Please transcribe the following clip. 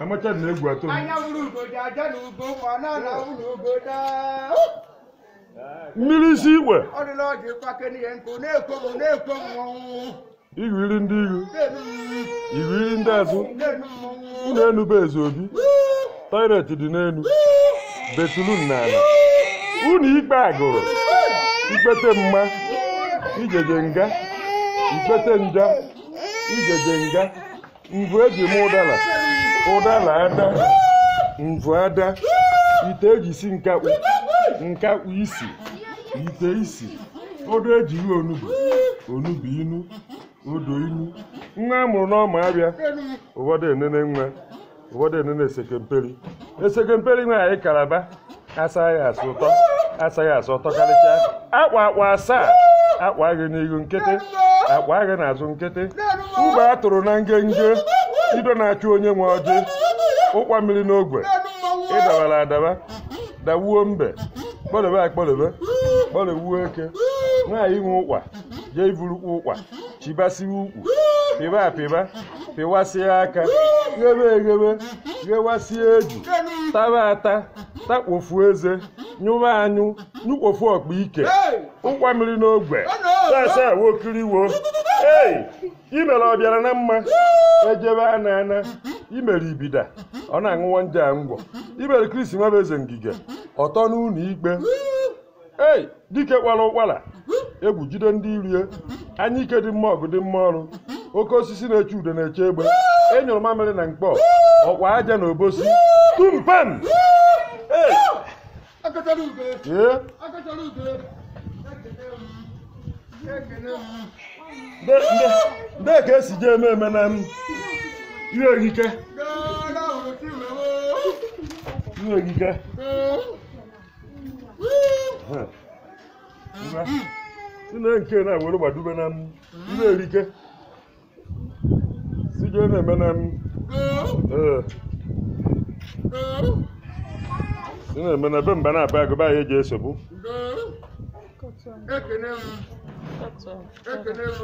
Amacha na egwu atụ mmiri si igwe igwiri ndị ihu igwiri ndị azụ unu enube eze obi toilet dị n'elu betulun na unu ikpe agụrụ ikpete mma ijeje nga ikpete nja ijeje nga mvụ eji eme ụdara ụdara ada mvụ ada ite eji si nkakpu nkakpu isi ite isi odo eji ihe onubu onubu inu odo inu nwa e mụrụ n'ọma abịa ụfọdụ enene nwa ụfọdụ enene esekemperi esekemperi nwa anyị kalaba asaghị asụ ụtọ asaghị asụ ụtọ karịchaa akwa akwa asaa akwa gị n'ihu nkịtị akpa agha na-azụ nkịtị ube a tụrụ na ngenge ido na-achụ onye nwe ọjị ụkwa mmiri n'ogwe ịdabara adaba dawuo mbe kpọlebe akpọdobe kpọdowuo eke nwaanyị inwe ụkwa jee iburukwu ụkwa chibasiwe ukwu pịba apịba pịwasịa aka ghebe eghebe ghewasịa eju taba ata takpofu eze nyụba anyụ nyụkpofu ọkpa ike ụkwa mmiri n'ogwe sasa awokiriwo ei imere ọ bịara na mma ejebe a na-ana imere ibida ọ na aṅụwa nje ngwọ imere krisi nwebe eze ngige ọtọ n'ụlọ ikpe ei dike kwara ụkwara egwu jide ndị irie anya ike dị mma ọgụ dị mma ọrụ oke osisi na-eche ude na-eche egbe enyụrụ mamịrị na mkpọ ọkwa aja na obosi tumpem ee Ndee ka esi ji eme eme na ihe ihe nne nke na na ihe erike si ga na-eme na ee na na mba na-aba agụba ya eji esogbu ekene m ekene m